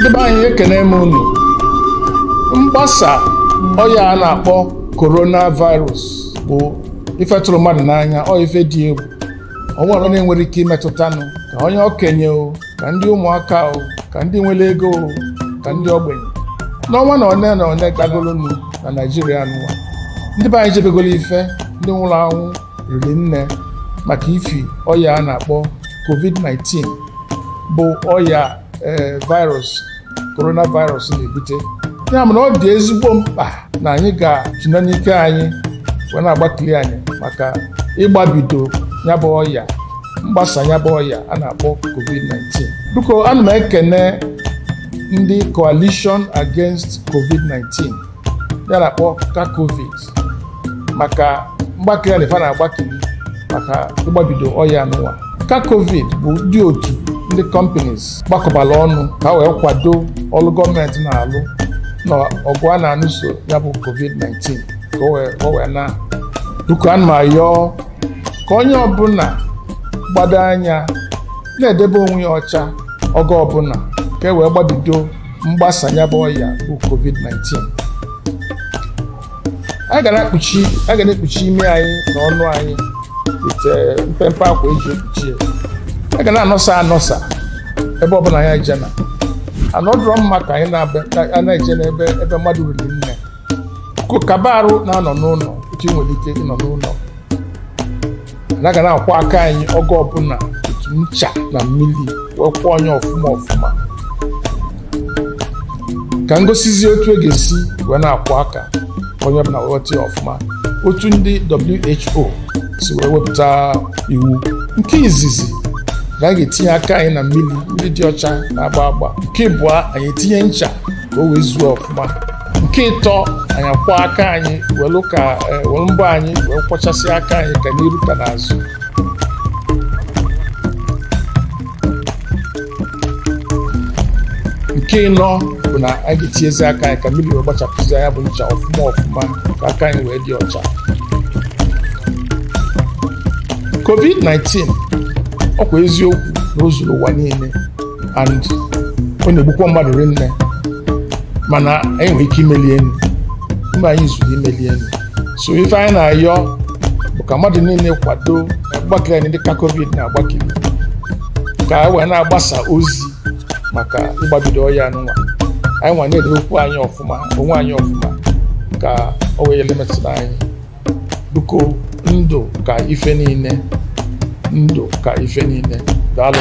ndị be anyị ekene m unu mgbasa ọya a na-akpọ coronavirus bụ ife mmadụ n'anya ọ ife dị egwu ọnwere onye nwere ike imetụtanụ ka onye okenye o ka ndị ụmụaka o ka ndị nwere ego o ka ndị ogbenye n'ọnwa na one na one gagolonu na naijiria n'ụwa ndị be anyị jebegolo ife ndị nwụrụ anwụ riri nne maka ifi ọya a na-akpọ covid-19 bụ ọya eh, virus coronavirus na-ebute ya na ọ dị ezigbo mkpa na anyị ga-atụnye n'ike anyị wee na-agbakili anyị maka ịgbabido yabụ ọya mgbasa yabụ ọya a na-akpọ covid-19 biko ana m ekene ndị coalition against covid-19 ya na-akpọ covid maka mgbakili anyị fa na-agbakili maka ịgbabido ọya n'ụwa ka covid bụ ndị otu ndị companies gbakọbara ọnụ ka wee kwado ọrụ gọọmenti na-alụ na ọgụ a na alụso ya bụ covid-19 ka o wee na duka ma ka onye ọbụla gbado anya na-edebe onwe ya ọcha oge ọbụla ka e wee gbabido mgbasa ya bụ ọya bụ covid-19 a ga na-ekpuchi ime anyị na ọnụ anyị ite eh, mpempe akwa eji ekpuchi ya na-anọsa anọsa ebe ọbụla ya jena anọdụrọ mma ka anyị na-eje n'ebe ebe mmadụ riri nne kaba arụ na-anọ n'ụlọ etu ị nwere ike ịnọ n'ụlọ anaga na-akwọ aka anyị oge ọbụla otu ncha na mmiri wee kwụọ onye ọfụma ọfụma ka ngosizi otu e ga-esi wee na aka onye ọbụla wee ya ọfụma otu ndị WHO si wee wepụta iwu nke izizi na anyị ga-etinye aka anyị na mmiri mmiri dị ọcha na-agba agba nke ịbụọ anyị etinye ncha ka o wee zuo ọfụma nke ịtọ anyị akwọ aka anyị welu ka e, welu mbọ anyị wee kwọchasị aka anyị ka n'iru ka n'azụ nke ịnọ bụ na anyị ga-etinyezi aka anyị ka mmiri wee gbachapụzi anya bụ ncha ọfụma ọfụma ka aka anyị wee dị ọcha covid-19 ọkwa eziokwu na o ụwa niile and ọ na-egbukwa mmadụ rinne mana anyị nwere ike imeli enu mba anyị zuru imeli enu so ife anyị na-ayọ bụ ka mmadụ niile kwado agbakere anyị dịka covid na-agbakere ka anyị wee na-agbasa ozi maka ịgbabido ọya nwa anyị nwa na-edebe anyị ọfụma onwe anyị ọfụma ka o wee elemetụrụ anyị biko ndụ ka ife niile ndụ ka ife niile daalụ